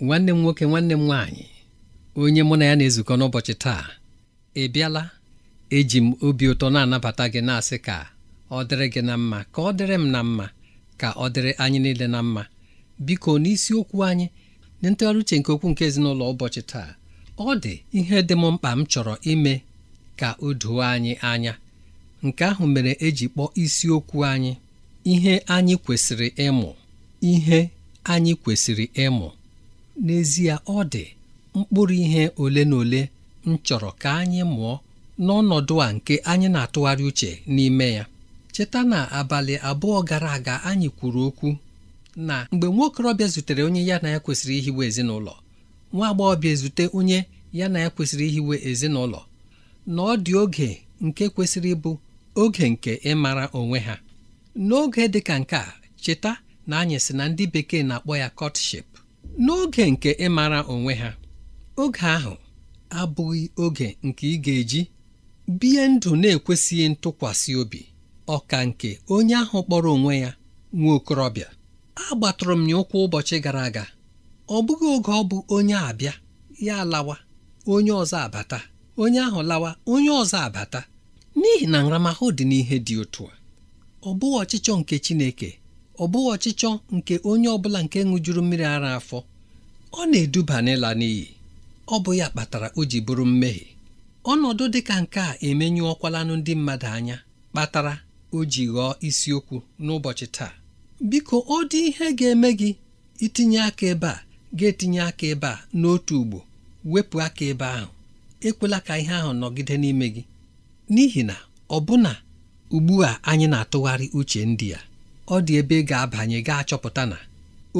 nwanne m nwoke nwanne m nwaanyị onye mụ na ya na-ezukọ n'ụbọchị taa ị bịala eji m obi ụtọ na-anabata gị na-asị ka ọ dịrị gị na mma ka ọ dịrị m na mma ka ọ dịrị anyị niile na mma biko n'isiokwu anyị na ntụgharị uche nke okwu nke ezinụlọ ụbọchị taa ọ dị ihe dị m mkpa m chọrọ ime ka o doo anyị anya nke ahụ mere eji kpọọ isiokwu anyị ihe anyị kwesịrị ịmụ ihe anyị kwesịrị ịmụ n'ezie ọ dị mkpụrụ ihe ole na ole m chọrọ ka anyị mụọ n'ọnọdụ a nke anyị na-atụgharị uche n'ime ya cheta na abalị abụọ gara aga anyị kwuru okwu na mgbe nwaokorobịa zutere onye ya na ya kwesịrị ihiwe ezinụlọ nwa agbọghọbịa ezute onye ya na ya kwesịrị ihiwe ezinụlọ na ọ dị oge nke kwesịrị ịbụ oge nke ịmara onwe ha n'oge dị ka nke a cheta na anyị sị na ndị bekee na-akpọ ya kọtship n'oge nke ịmara onwe ha oge ahụ abụghị oge nke ị ga-eji bie ndụ na-ekwesịghị ntụkwasị obi ọka nke onye ahụ kpọrọ onwe ya nwa okorobịa agbatụrụ m ya ụkwụ ụbọchị gara aga ọ bụghị oge ọ bụ onye abịa ya lawa onye ọzọ abata onye ahụ lawa onye ọzọ abata n'ihi na nramahụ dị n'ihe dị otu a ọ bụghị ọchịchọ nke Chineke ọ bụghị ọchịchọ nke onye ọ bụla nke ṅụjuru mmiri ara afọ ọ na-eduba n'ịla n'iyi ọ bụ ya kpatara o ji bụrụ mmehie ọnọdụ dị ka nke a emenyu ndị mmadụ anya kpatara o ji ghọọ isiokwu n'ụbọchị taa biko ọ dị ihe ga-eme gị itinye aka ebe a ga-etinye aka ebe a n'otu ugbo wepụ aka ebe ahụ ekwela ka ihe ahụ nọgide n'ime gị n'ihi na ọbụna ugbu a anyị na-atụgharị uche ndị a ọ dị ebe ị ga-abanye ga chọpụta na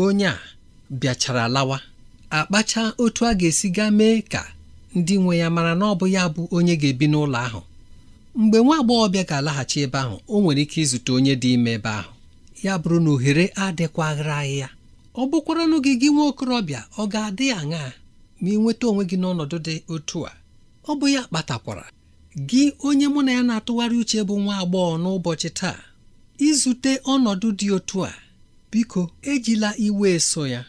onye a bịachara lawa akpacha otu a ga-esi gaa mee ka ndị nwe ya mara na ọ bụ ya bụ onye ga-ebi n'ụlọ ahụ mgbe nwa bịa ga-alaghachi ebe ahụ o nwere ike izute onye dị ime ebe ahụ ya bụrụ na ohere adịkwaghịrị ya ọ bụkwaranụ gị gị nwa okorobịa ọ ga-adị aṅaa ma ị nweta onwe gị n'ọnọdụ dị otu a ọ bụ ya kpatakwara gị onye mụ na ya na-atụgharị uche bụ nwa agbọghọ n'ụbọchị taa izute ọnọdụ dị otu a biko ejila iwe eso ya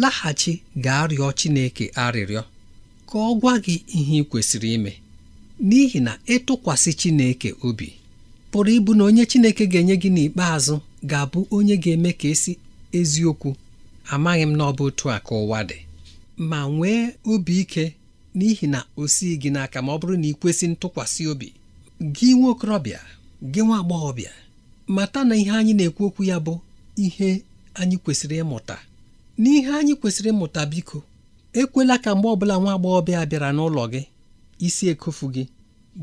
laghachi gaa rịọ Chineke arịrịọ ka ọ gwa gị ihe ị kwesịrị ime n'ihi na ịtụkwasị Chineke obi pụrụ ịbụ na onye Chineke ga-enye gị n'ikpeazụ ga-abụ onye ga-eme ka esi eziokwu amaghị m na otu a ka ụwa dị ma nwee obi ike n'ihi na o sighị gị n'aka ma ọ bụrụ na ị kwesị ntụkwasị obi gị nwa okorobịa gị nwa agbọghọbịa mata na ihe anyị na-ekwu okwu ya bụ ihe anyị kwesịrị ịmụta n'ihe anyị kwesịrị ịmụta biko ekwela ka mgbe ọbụla nwa agbọghọbịa bịara n'ụlọ gị isi ekofu gị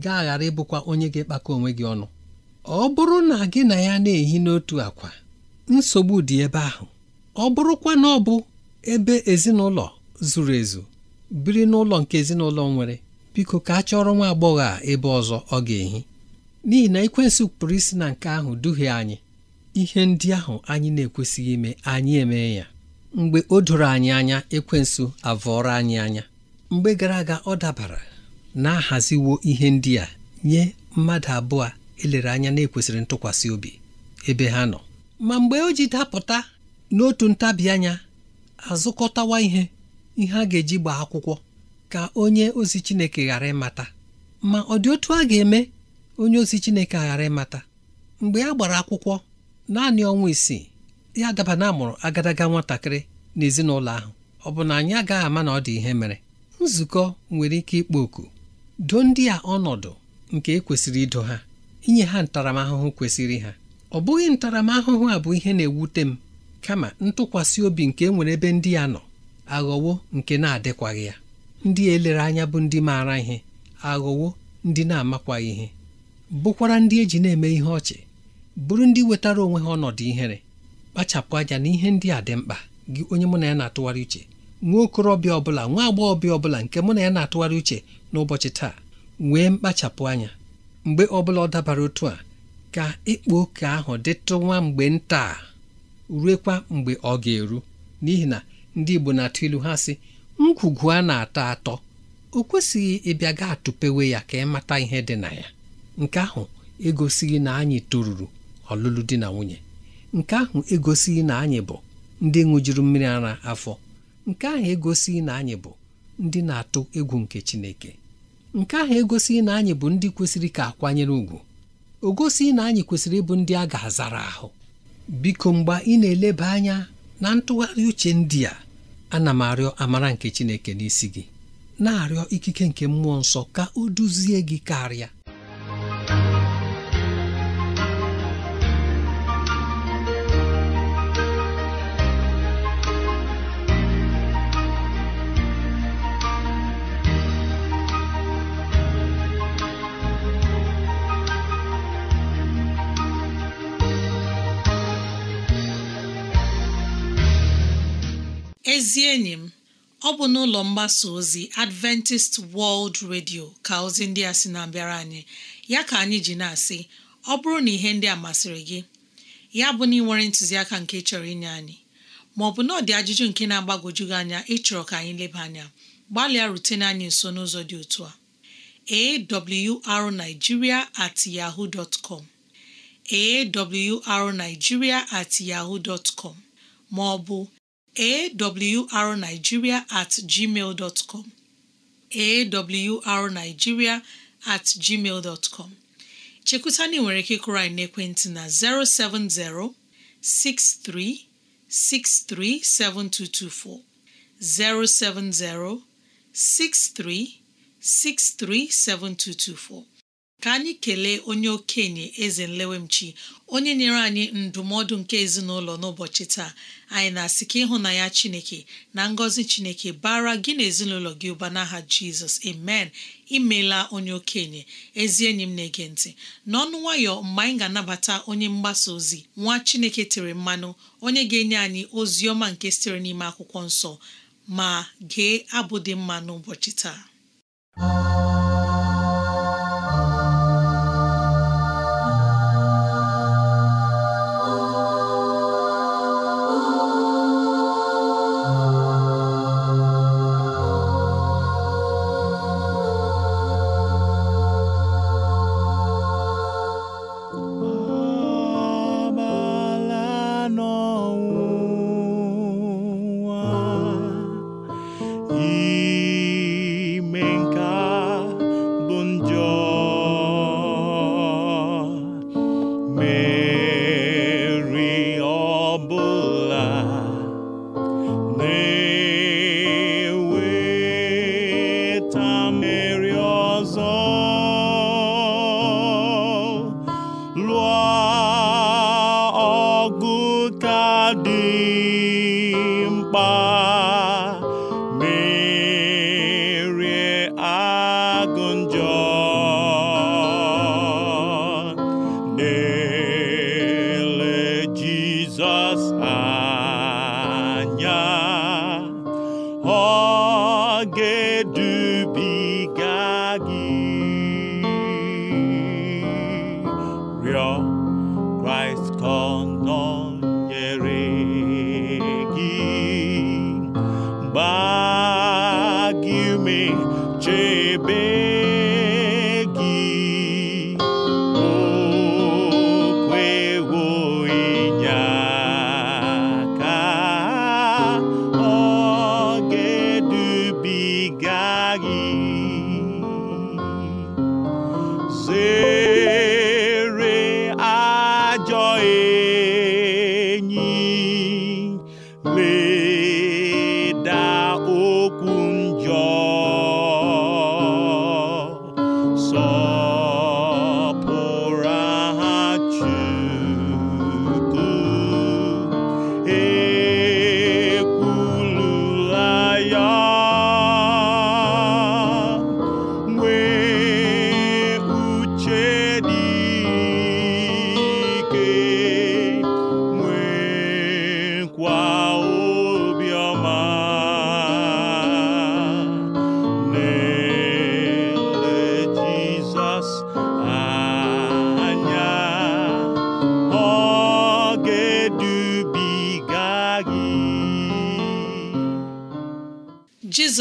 gaa ghara ịbụkwa onye ga-ekpakọ onwe gị ọnụ ọ bụrụ na gị na ya na-ehi n'otu akwa nsogbu dị ebe ahụ ọ bụrụkwa na ọ bụ ebe ezinụlọ zuru ezu biri n'ụlọ nke ezinụlọ nwere biko ka a chọrọ nwa agbọghọ a ebe ọzọ ọ ga-ehi n'ihi na ekwensu pụrụ isi na nke ahụ duhie anyị ihe ndị ahụ anyị na-ekwesịghị ime anyị eme ya mgbe o doro anyị anya ekwensu avọrọ anyị anya mgbe gara aga ọ dabara na-ahaziwo ihe ndị a nye mmadụ abụọ elere anya na-ekwesịrị ntụkwasị obi ebe ha nọ ma mgbe o ji dapụta n'otu ntabi anya azụkọtawa ihe ihe a ga-eji gbaa akwụkwọ ka onye ozi Chineke ghara ịmata ma ọ dị otu a ga-eme onye ozi Chineke aghara ịmata mgbe a gbara akwụkwọ naanị ọnwa isii ya daba na amụrụ agadaga nwatakịrị n'ezinụlọ ahụ ọ bụ na anyị agaghị ama na ọ dị ihe mere nzukọ nwere ike ịkpọ oku doo ndị a ọnọdụ nke ekwesịrị ido ha inye ha ntaramahụhụ kwesịrị ha ọ bụghị ntaramahụhụ a bụ ihe na-ewute m kama ntụkwasị obi nke e nwere ebe ndị a nọ aghọwo nke na-adịkwaghị ya ndị elere anya bụ ndị maara ihe aghọwo ndị na-amakwaghị ihe bụkwara ndị eji na-eme ihe ọchị bụrụ ndị wetara onwe ha ọnọdụ ihere kpachapụ anya na ihe ndị a dị mkpa gị onye mụ na ya na-atụgharị uche nwa okorobịa ọbụla nwa agbọghọbịa ọbụla nke mụ na ya na-atụgharị uche n'ụbọchị taa nwee mkpachapụ anya mgbe ọbụla ọ dabara otu a ka ịkpa oke ahụ dịtụwa mgbe nta ruekwa mgbe ọ ga-eru n'ihi na ndị Igbo na-atụ ilu ha sị ngwugwu a na-atọ atọ o kwesịghị ịbịa ga atụpewe ya ka ị mata ihe dị na ya nke ahụ egosighị na anyị toruru ọlụlụ di na nwunye nke ahụ egosighị na anyị bụ ndị ṅụjuru mmiri ara afọ nke ahụ egosighị na anyị bụ ndị na-atụ egwu nke Chineke nke ahụ egosighị na anyị bụ ndị kwesịrị ka akwanyere ugwu Ogosighị na anyị kwesịrị ịbụ ndị a ga-azara ahụ biko mgbe ị na-eleba anya na ntụgharị uche ndị a ana m arịọ amara nke Chineke n'isi gị na-arịọ ikike nke mmụọ nsọ ka o duzie gị karịa ezi enyi m ọ bụ n'ụlọ mgbasa ozi Adventist World Radio ka ozi ndị a sị na-abịara anyị ya ka anyị ji na-asị ọ bụrụ na ihe ndị a masịrị gị ya bụ na ị nwere ntụziaka nke chọrọ inye anyị ma ọ bụ na ọdị ajụjụ nke na-agbagwoju gị anya ịchọrọ ka anyị leba anya gbalịa rutene anyị nso n'ụzọ dị otu a arigiria at yahoo dot com at yahoo dot com ma ọ bụ awrnigeria at gmail com awrnigeria at gmail com nchekwaani nwere ike kụri n'ekwentị na 070 6363 7224. 070 633 7224. ka anyị kelee onye okenye eze nlewemchi onye nyere anyị ndụmọdụ nke ezinụlọ n'ụbọchị taa anyị na-asị ka ịhụnanya chineke na ngọzi chineke bara gị na ezinụlọ gị ụba n'aha jizọs amen imela onye okenye ezi enyi m na-ege ntị n'ọnụ nwayọ mgbe anyị ga-anabata onye mgbasa ozi nwa chineke tere mmanụ onye ga-enye anyị ozi ọma nke sitere n'ime akwụkwọ nsọ ma gee abụ dị mma n'ụbọchị taa Bye.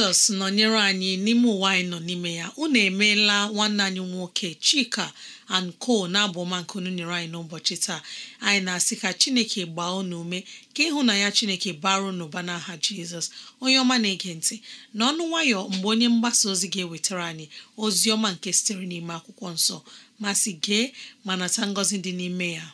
jizọs nọnyere anyị n'ime ụwa anyị nọ n'ime ya unu emeela nwanne anyị nwoke chika anko na-abụ ọma nke unu nyere anyị n'ụbọchị taa anyị na-asị ka chineke gbaa unu ume ka ya chineke bara unu ụba n'aha jizọs onye ọma na-ege ntị n'ọnụ nwayọ mgbe onye mgbasa ozi ga-ewetara anyị ozi ọma nke sitere n'ime akwụkwọ nsọ ma gee ma nata ngọzi dị n'ime ya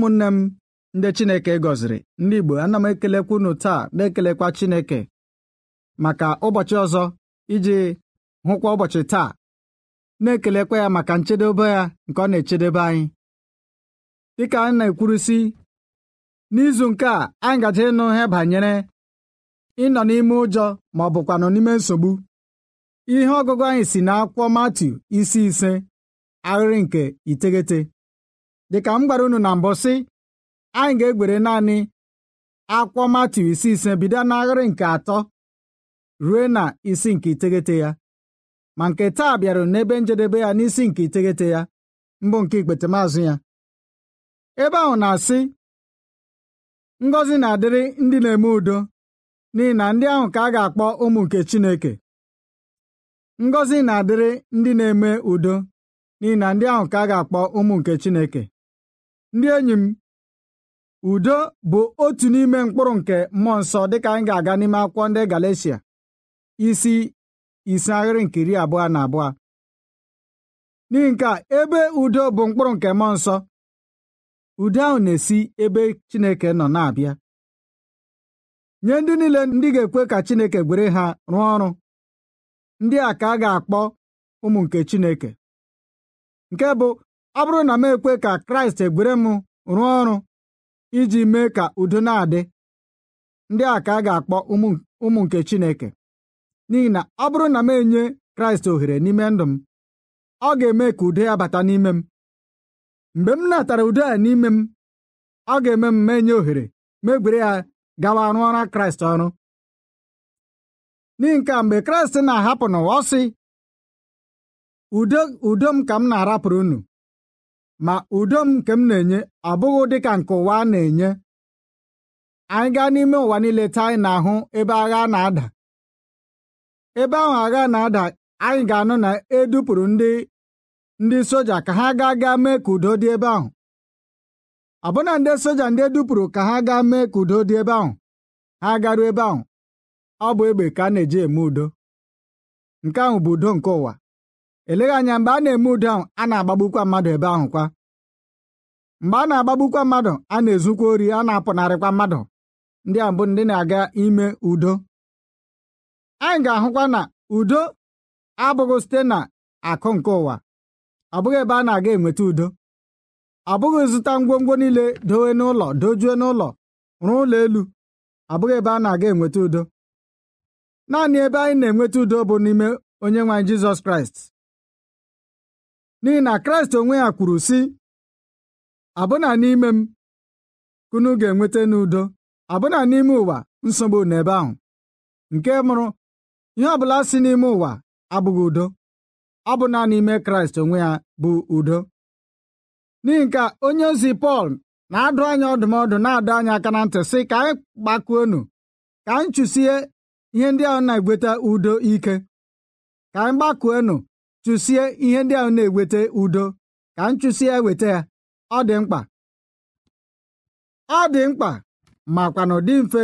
ụmụnne m ndị Chineke gọziri ndị Igbo ana m ekelekwa unu taa na-ekelekwa Chineke maka ụbọchị ọzọ iji hụkwa ụbọchị taa na-ekelekwa ya maka nchedobe ya nke ọ na-echedebe anyị dịka anyị na-ekwurusi n'izu nke a anyị gaje ịnụ ihe banyere ịnọ n'ime ụjọ ma ọ bụkwa nọ n'ime nsogbu ihe ọgụgụ anyị si n'akwụkwọ matu isi ise ahịrị nke iteghete dịka m gwara unu na mbụ sị anyị ga-egbere naanị akwọ Matiu isi ise bido n'agharị nke atọ ruo na isi nke iteghete ya ma nke taa bịara n'ebe njedebe ya n'isi nke iteghete ya mbụ nke ikpete maazụ ya ebe ahụ na-asị ngọzi na-adịrị ndị na-eme udo n'ihi na ndị ahụ ka na-adịrị ndị na-eme udo n'ihi na ndị ahụ ka a ga-akpọ ụmụ nke Chineke ndị enyi m udo bụ otu n'ime mkpụrụ nke mmụọ nsọ dịka anyị ga-aga n'ime akwụkwọ ndị Galatia isi isi ahịrị nke iri abụọ na abụọ n'ihi nke a ebe udo bụ mkpụrụ nke mmụọ nsọ udo ahụ na-esi ebe Chineke nọ na-abịa nye ndị niile ndị ga-ekwe ka Chineke gwere ha rụọ ọrụ ndị a ka a ga-akpọ ụmụ nke Chineke nke bụ ọ bụrụ na m ekwe ka kraịst egwere m rụọ ọrụ iji mee ka udo na-adị ndị a ka a ga-akpọ ụmụ nke chineke n'ihi na ọ bụrụ na m enye kraịst ohere n'ime ndụ m ọ ga-eme ka udo ya bata n'ime m mgbe m natara udo ya n'ime m ọ ga-eme m menye ohere megwere ya gawa rụọ ọrụ kraịst ọrụ n'ihi nke a mgbe kraịst na-ahapụ n'ụwa ọ sị udo m ka m na-arapụrụ unu ma udo m nke m na-enye abụghị ka nke ụwa a na-enye anyị gaa n'ime ụwa niile taa anyị na-ahụ ebe agha na-ada ebe ahụ agha na-ada anyị ga-anụ na edupụrụ ndị ndị soja ka ha gaa gaa mee ka udo dị ebe ahụ ọbụna ndị soja ndị edupụrụ ka ha gaa mee ka udo dị ebe ahụ ha garuo ebe ahụ ọ bụ egbe ka a na-eji eme udo nke ahụ bụ udo nke ụwa eleghị anya mgbe a na-eme udo ahụ a na-agbagbukwa mmadụ ebe ahụ kwa mgbe a na-agbagbukwa mmadụ a na-ezukwa ori a na-apụnarịkwa mmadụ ndị a bụ ndị na-aga ime udo anyị ga-ahụkwa na udo abụghị site na akụ nke ụwa ọ bụghị ebe a na-aga enweta udo ọ bụghị zụta ngwongwo niile dowe n'ụlọ dojue n'ụlọ rụọ ụlọ elu ọ bụghị ebe a na-aga enweta udo naanị ebe anyị na-enweta udo bụ n'ime onye nwaanyị Jizọs Kraịst n'ihi na kraịst onwe ya kwuru si, abụna n'ime m kunu ga-enweta n'udo abụna n'ime ụwa nsogbu n'ebe ahụ nke mụrụ ihe ọbụla si n'ime ụwa abụghị udo ọ bụ na n'ime kraịst onwe ya bụ udo n'ihi nke onye ozi pọl na-adụ anya ọdụmọdụ na-adụ anya aka na ntị sị ka anyị gbakuonu ka anyị chụsie ihe ndị ahụ na-egweta udo ike ka anyị gbakuonu chụsie ihe ndị ahụ na-eweta udo ka nchụsi ya weta ya ọ dị mkpa ọ dị mkpa makwa na dị mfe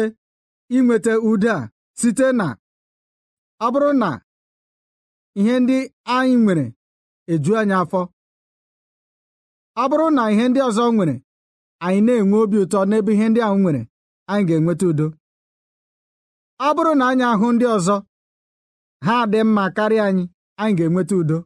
inweta udo a site na ọ bụrụ na ihe ndị anyị nwere eju anyị afọ ọ bụrụ na ihe ndị ọzọ nwere anyị na-enwe obi ụtọ n'ebe ihe ndị ahụ nwere anyị ga-enweta udo ọ bụrụ na anyị ahụ ndị ọzọ ha dị mma karịa anyị anyị ga-enweta udo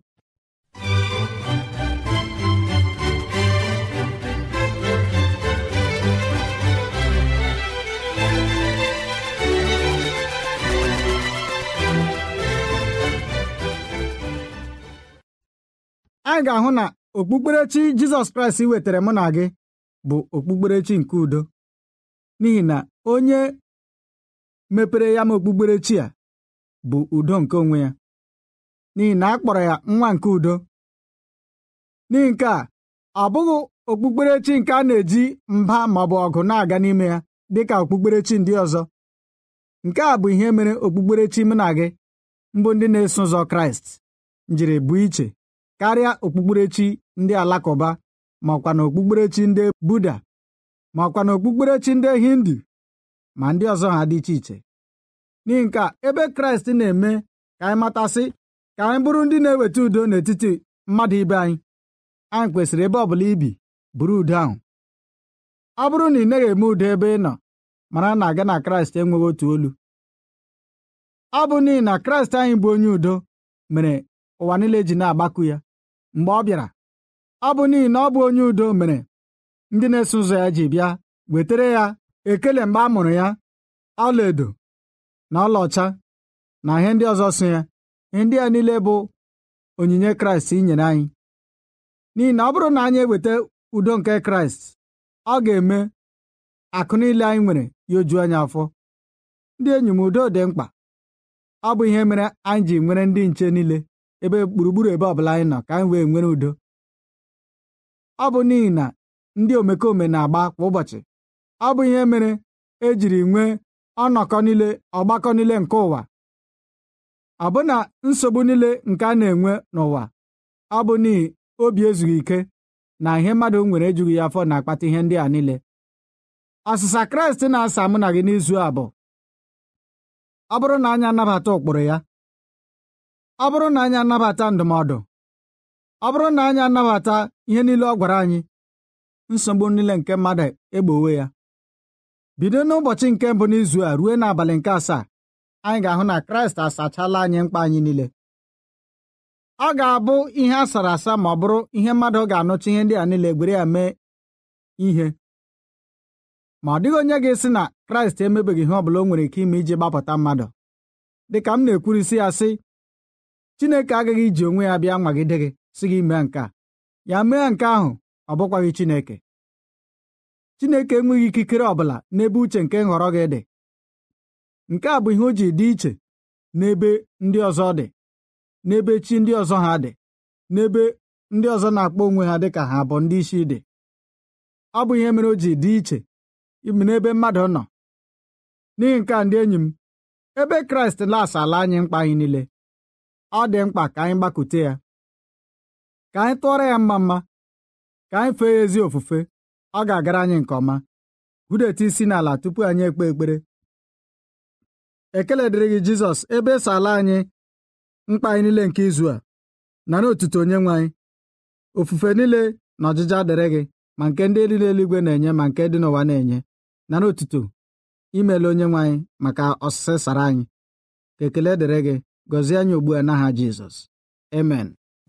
anyị ga-ahụ na okpukperechi Jizọs Kraịst wetara mụ na gị bụ okpukperechi nke udo n'ihi na onye mepere ya ma okpukperechi a bụ udo nke onwe ya n'ihi na a kpọrọ ya nwa nke udo n'ihi nke a ọ bụghị okpukperechi nke a na-eji mba ma ọ bụ ọgụ na-aga n'ime ya dị ka okpukperechi ndị ọzọ nke a bụ ihe mere okpukperechi mụ na gị mbụ ndị na-eso ụzọ kraịst njiri bụ iche karịa okpukperechi ndị alakụba ma na okpukperechi ndị buda ma ọkwa na okpukperechi ndị hindu ma ndị ọzọ ha dị iche iche n'ihi nke a ebe kraịst na-eme ka anyị matasị ka anyị bụrụ ndị na-eweta udo n'etiti mmadụ ibe anyị anyị kwesịrị ebe ọ bụla ibi buru udo ahụ ọ bụrụ na ị naghị eme udo ebe ị nọ mara na aga na kraịst enweghị otu olu ọ bụ n'ihi na kraịst anyị bụ onye udo mere ụwa niile ji na-agbakụ ya mgbe ọ bịara ọ bụ n'ihi na ọ bụ onye udo mere ndị na-eso ụzọ ya ji bịa wetara ya ekele mgbe a mụrụ ya ọlaedo na ọlaọcha na ihe ndị ọzọ so ya ndị a niile bụ onyinye kraịst i nyere anyị n'ihi na ọ bụrụ na anyị eweta udo nke kraịst ọ ga-eme akụ niile anyị nwere ya oju anyị afọ ndị enyi m udo dị mkpa ọ bụ ihe mere anyị ji nwere ndị nche niile ebe gburugburu ebe ọbụla anyị nọ ka anyị wee nwere udo ọ bụ n'ihi na ndị omekome na-agba kwa ụbọchị ọ bụ ihe mere ejiri nwee ọnọkọ niile ọgbakọ niile nke ụwa abụ na nsogbu niile nke a na-enwe n'ụwa ọ bụ n'ihi obi ezughị ike na ihe mmadụ nwere ejughị ya afọ na-akpata ihe ndị a niile asụsa Kraịst na-asa mụ na gị n'izu a bụ ọ bụrụ na anyị anabata ụkpụrụ ya ọ bụrụ na anyị anabata ndụmọdụ ọ bụrụ na anyị anabata ihe niile ọ gwara anyị nsogbu niile nke mmadụ egbowe ya bido n'ụbọchị nke mbụ n'izu a ruo n'abalị nke asaa anyị ga-ahụ na kraịst asachala anyị mkpa anyị niile ọ ga-abụ ihe a sara asa ma ọ bụrụ ihe mmadụ ga-anụcha ihe ndị a niile gwere ya mee ihe ma ọ dịghị onye ga-esi na kraịst emebeghị ihe ọ bụla o nwere ike ime iji gbapụta mmadụ dịka m na-ekwurisi ya sị Chineke agaghị iji onwe ya bịa nwagide gị si gị mee nke a ya mee nke ahụ ọ bụkwaghị Chineke Chineke enweghị ikikere ọ bụla n'ebe uche nke nhọrọ gị dị nke a bụ ihe o ji dị iche n'ebe ndị ọzọ dị n'ebe chi ndị ọzọ ha dị n'ebe ndị ọzọ na-akpọ onwe ha dịka ha bụ ndị isi dị ọ bụ ihe mere o ji dị iche ime n'ebe mmadụ nọ n'ihi nke a ndị enyi m ebe kraịst ala anyị mkpa anyị niile ọ dị mkpa ka anyị gbakute ya ka anyị tụọrọ ya mma mma ka anyị fee ya ezi ofufe ọ ga-agara anyị nke ọma hụdeta isi n'ala tupu anyị ekpe ekpere ekele dịrị gị Jizọs ebe eso ala anyị mkpa anyị niile nke izu a nara otuto onye nwe anyị ofufe niile na ọjịja dịrị gị ma nke ndị dị n'eluigwe na-enye ma nke dị n'ụwa na-enye nara otuto imele onye nwe anyị maka ọsịsị sara anyị ka ekele dịrị gị gọzie anyị ugbu a n'aha Jizọs amen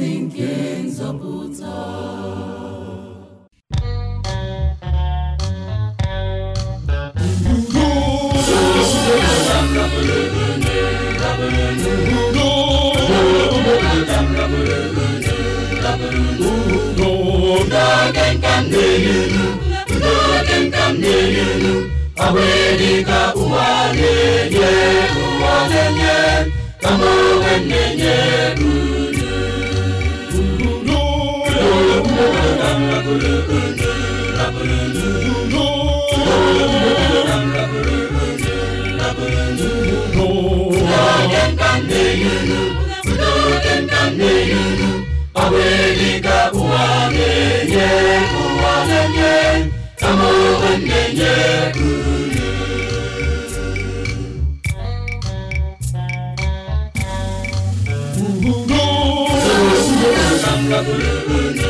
ozi nke nzọpụta n'oge na na ụwa na-enye ụwa na-enye na Ooh, ooh, ooh.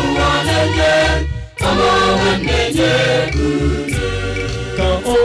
on ka ọ on and get ka ọ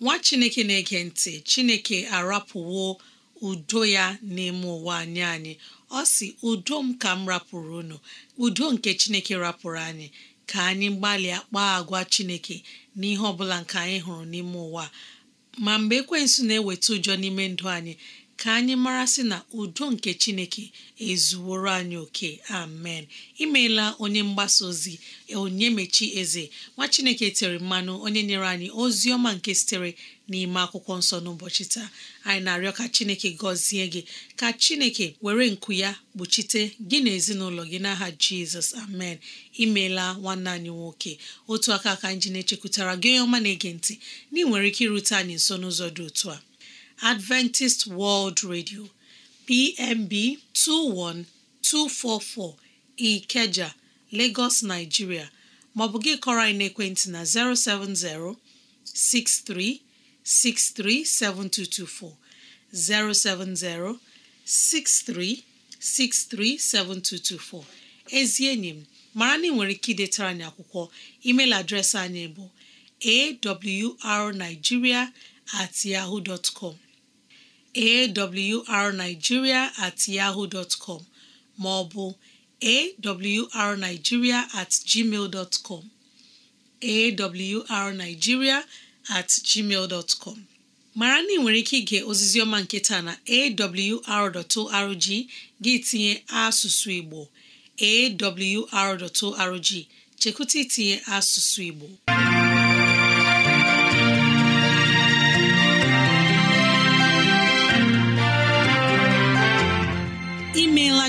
Nwa Chineke na-ege ntị, Chineke arapụwo udo ya n'ime ụwa anyị anyị. ọ si udo m ka m rapụrụ unu udo nke chineke rapụrụ anyị ka anyị gbalịa kpaa agwa chineke n'ihe ọbụla bụla nke anyị hụrụ n'ime ụwa ma mgbe ekwensu na-eweta ụjọ n'ime ndụ anyị ka anyị mara sị na udo nke chineke ezuworo anyị oke amen imeela onye mgbasa ozi onye mechi eze nwa chineke tere mmanụ onye nyere anyị ozi ọma nke sitere n'ime akwụkwọ nsọ n'ụbọchị taa anyị na-arịọ ka chineke gọzie gị ka chineke were nku ya kpuchite gị na ezinụlọ gị n'aha jizọs amen imeela nwanne anyị nwoke otu aka ka anyị ji na-echekwutara gị onye ọma na-ege ntị na ị nwere ike irute anyị nso n'ụzọ dị otu a Adventist World Radio PMB 21244 Ikeja Lagos Nigeria maọbụ gị kọrọ anyị n'ekwentị na 070 6363 7224 070 6363 7224 ezi enyi m mara na ị nwere ike idetara anyị akwụkwọ email adreesị anyị bụ awrnigeria awrnigeria at com ma ọ bụ awrnigeria at gmail dot com at gmail mara na ị nwere ike ige ozizioma ọma nke taa na awr.org gị tinye asụsụ Igbo awr.org chekwụta itinye asụsụ Igbo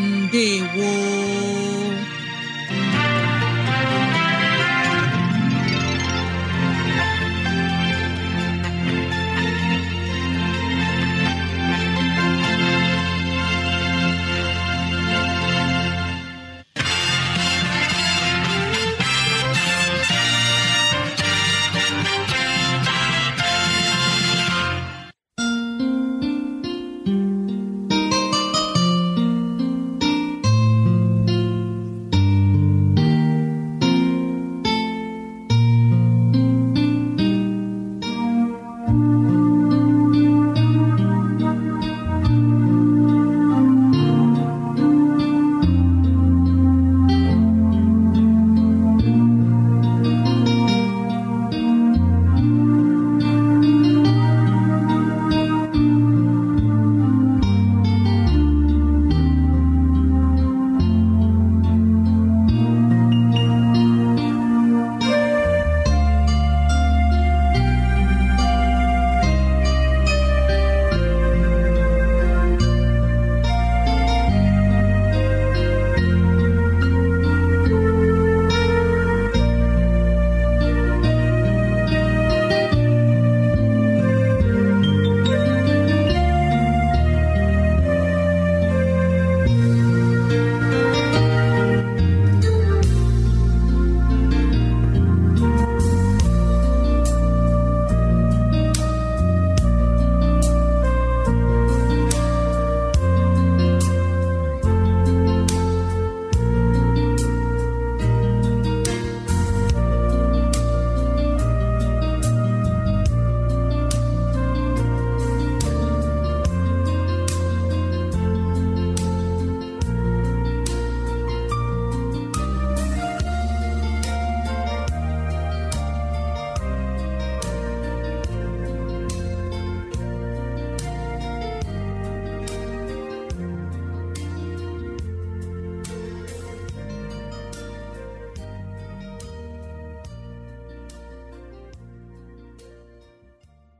woo!